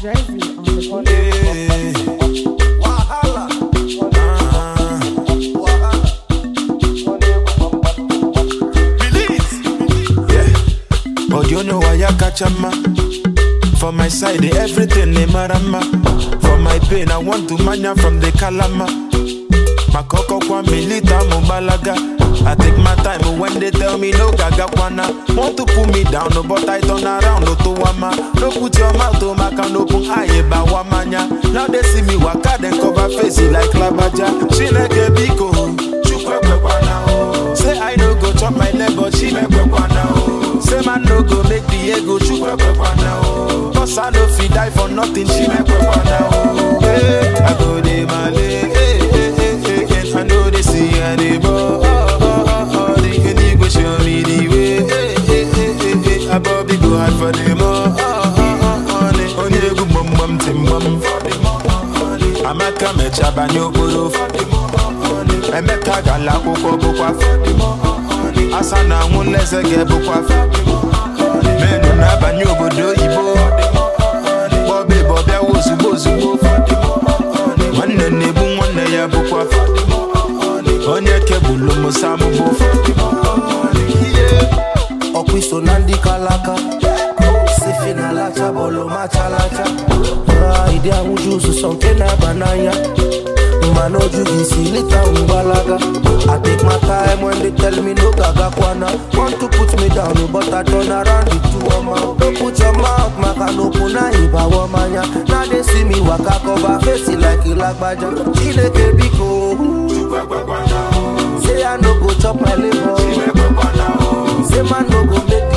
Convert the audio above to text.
but the beat. Yeah. you know I catch a ma. For my side, everything they mara ma. For my pain, I want to mania from the calama. My coco kwa milita mubalaga. I take my time when they tell me no gaga kwana. Want to pull me down, no but I turn around, no to wama. No put your mouth to my can open aye ba wamanya. Now they see me waka then cover face eh, like labaja. She nege biko. Oh, oh. Say I no go chop my leg but she make kwana. Oh. Say man no go make the ego chukwe kwana. Cause I no fit die for nothing, she make kwana. amaka obodo okporo emeka gala akwụkwọ bụkwa asa na anwụ n'eze ga-ebụkwa menu na-abanye obodo oyibo bọbe bọbịawa ozugbo ozugbo nwanne na ebu nwanne ya bụkwa onye kebụlụ musa mụbụ ọkụ iso na ndị kalaka sifi bụ lacha uzuzo nke na-aba n'anya mana oju gị isi lita mgbalaga I take my time when they tell me no gaga kwana Want to put me down but I turn around the two ọma No put your mouth maka n'okwu na ịbawa mmanya Na dey see me waka cover face like ịlagbaja Chineke biko Say I no go chop my labor Say man no go make